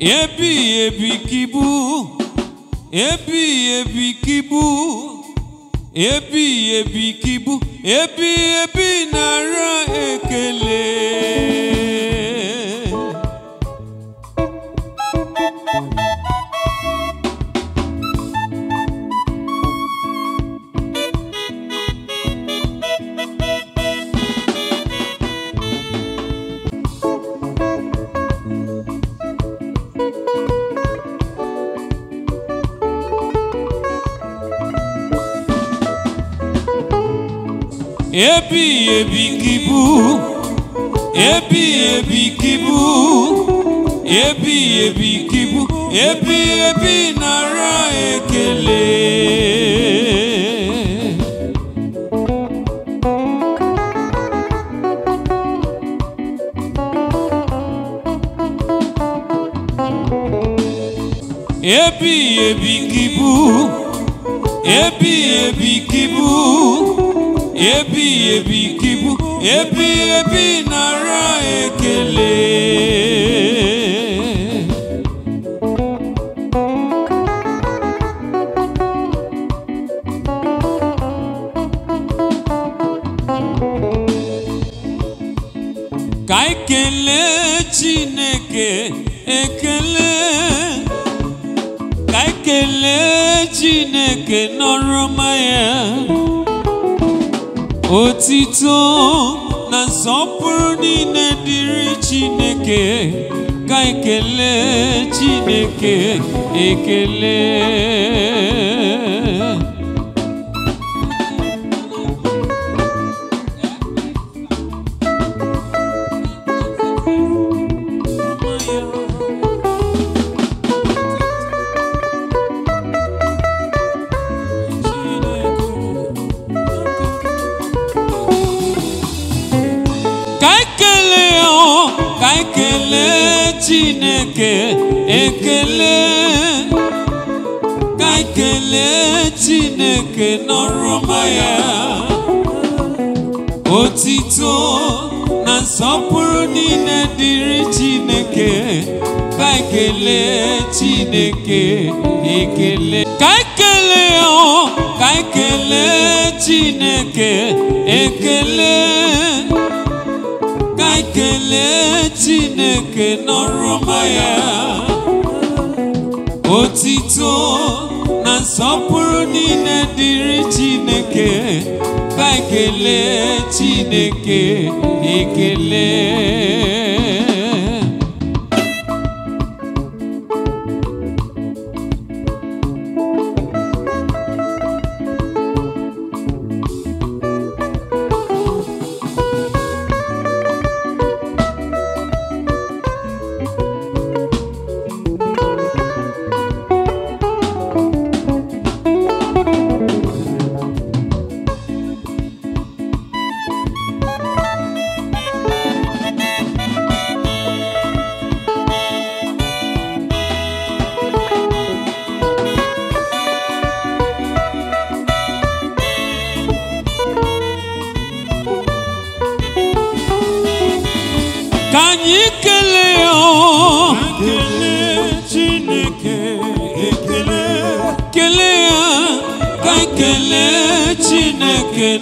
ebighị ebi kibu ebighị ebi kibu ebighị ebi kibu ebighị ebi nara ekele ebi ebikibu ebi ebikibu ebi ebikibu ebi ebi nara ekele. ebi ebikibu ebi ebikibu ebi ebi gị ebi ebighị ebi nara ekele ka anyị Chineke ekele ka anyị Chineke n'ọrụ ọma Otito na nsọpụrụ ne dịrị Chineke ka Chineke ekele ekele ka ekele Chineke n'ọrụ ọma ya otito na nsọpụrụ niile dịrị Chineke ka ekele Chineke ekele ka ekele ọ oh, ka ekele Chineke ekele oke n'ọrụma ya otito na nsọpụrụ niile dịrị Chineke ka ekele Chineke ekele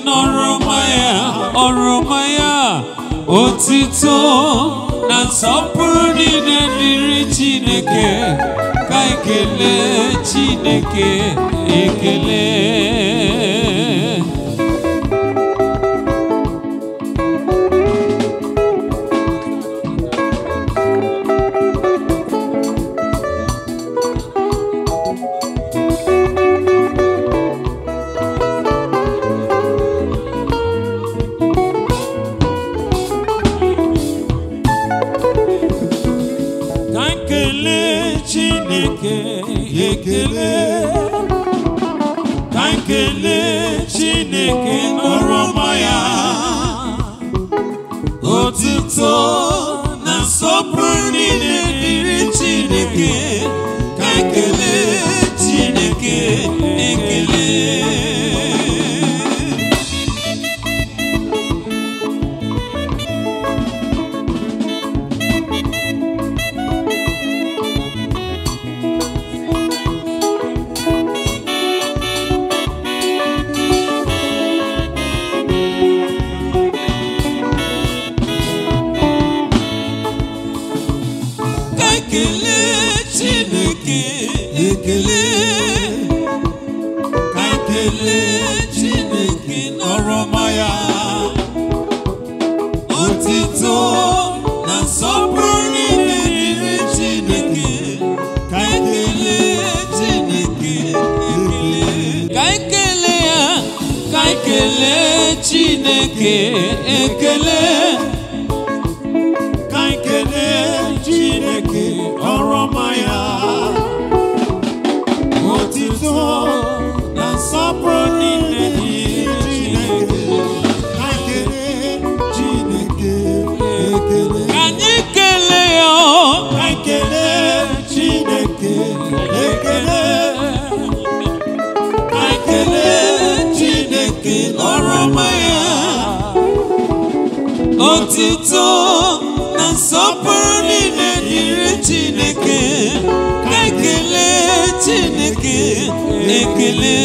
n'ọrụma ya ọrụma ya otito na nsọpụrụ niile dịrị Chineke ka ekele Chineke ekele Kankele chineke nọrọ ọma ya otuto na nsọpụrụ niile dịrị chineke ka chineke ekele Ekele Chineke n'ọrụ ọma ya otito na Chineke Chineke Chineke ekele Otito na-asọpụrụ niile Chineke na-ekele Chineke na-ekele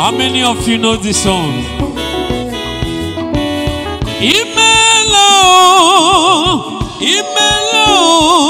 How many of you know this song? Imelo, Imelo.